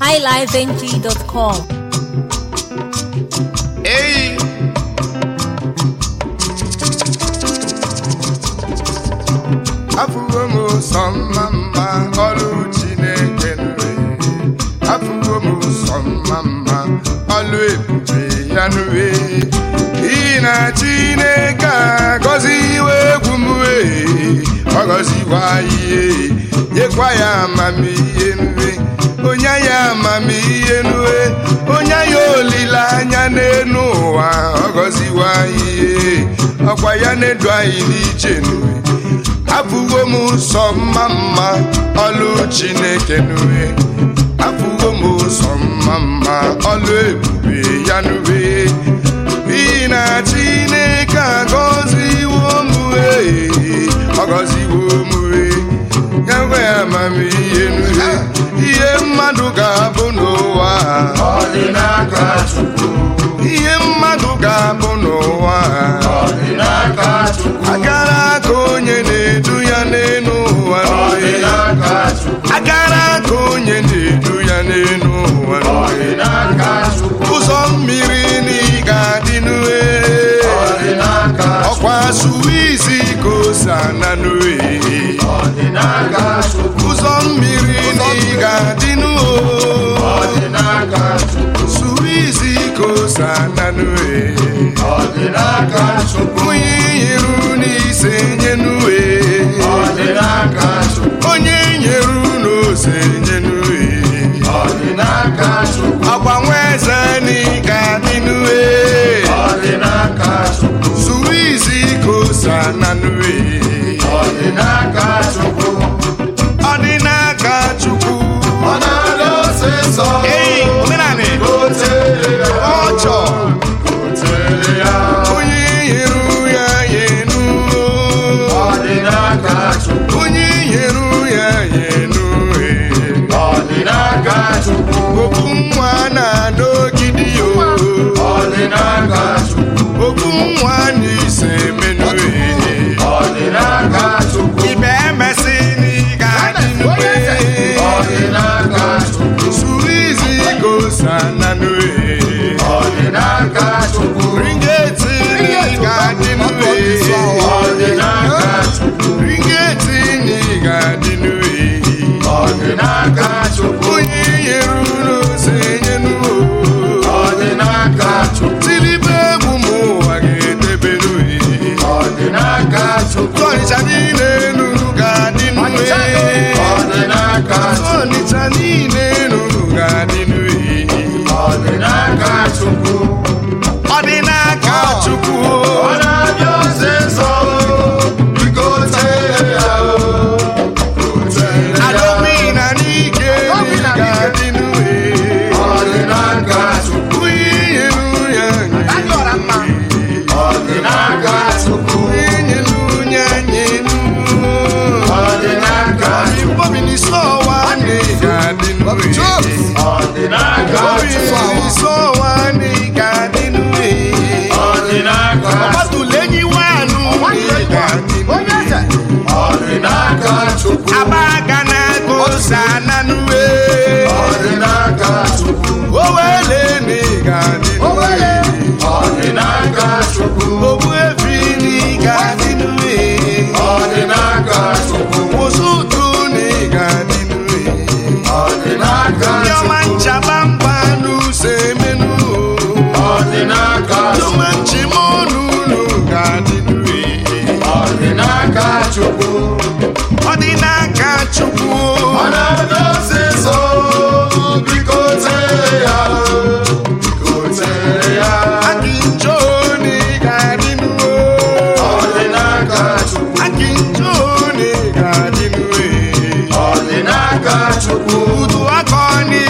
highlifeng.com. Hey! Afụwo m ụsọ mma mma ọrụ Chineke nwe. Afụwo m ụsọ mma mma ọrụ ebube ya nyekwa ihe nyekwa ya amamihe nri onye ya amamihe nue onye ya olileanya n'elu ụwa Ọgọziwa ihe ọkwa ya na-edu anyị n'iche nue abụgo m ụsọ mma mma ọlụ chineke nue abụgo m ụsọ mma mma ọlụ ebube ya nue na chineke agọ amamihe ihe mmadụ ga-abụ n'ụwa n'aka dịnuo suru izi ka ose ananue onye ihiru n'ise nye e. Hey! n'aka Chukwu ọ dị n'aka Chukwu ọ na-abịa biko tere ya biko tere ya ọ dị Chukwu na ọ dị n'aka Chukwu ụdụ aka ọ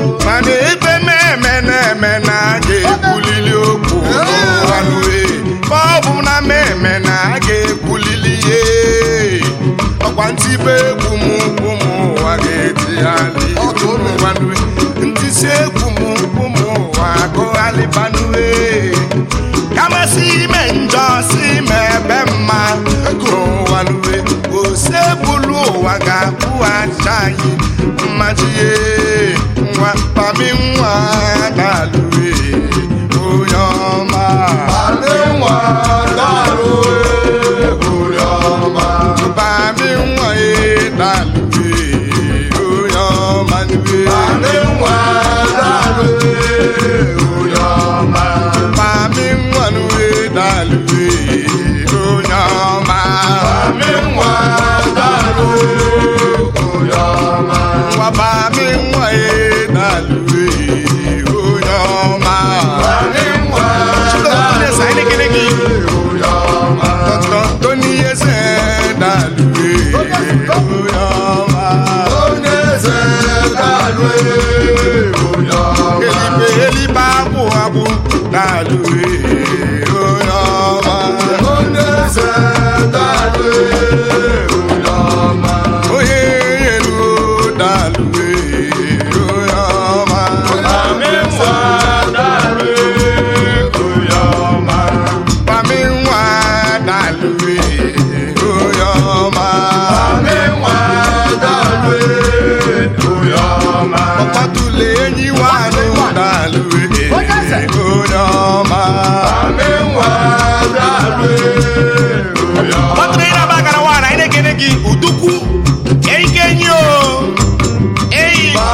ọkwa ntibe egwu m ụmụ ụwa ga-etigharị ntisi egwu m ụmụ ụwa gụgharịbanue kamasị ime njọ si ime ebe mma n'ụwa nue ose bụrụ ụwa ga-akwụghachi anyị mmaji nwa pami nwa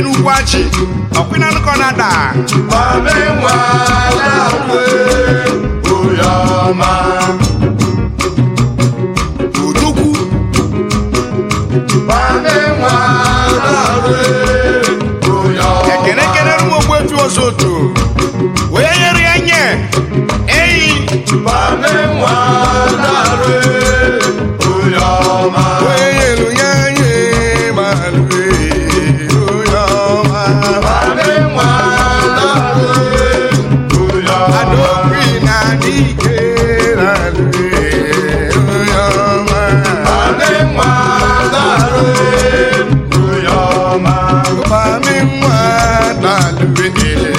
bi n'ugwu achị na-ada odogwu ekene ekene rụ ogbuefi ọzọ otu onye ọ ya nye eyi n'ala ube ele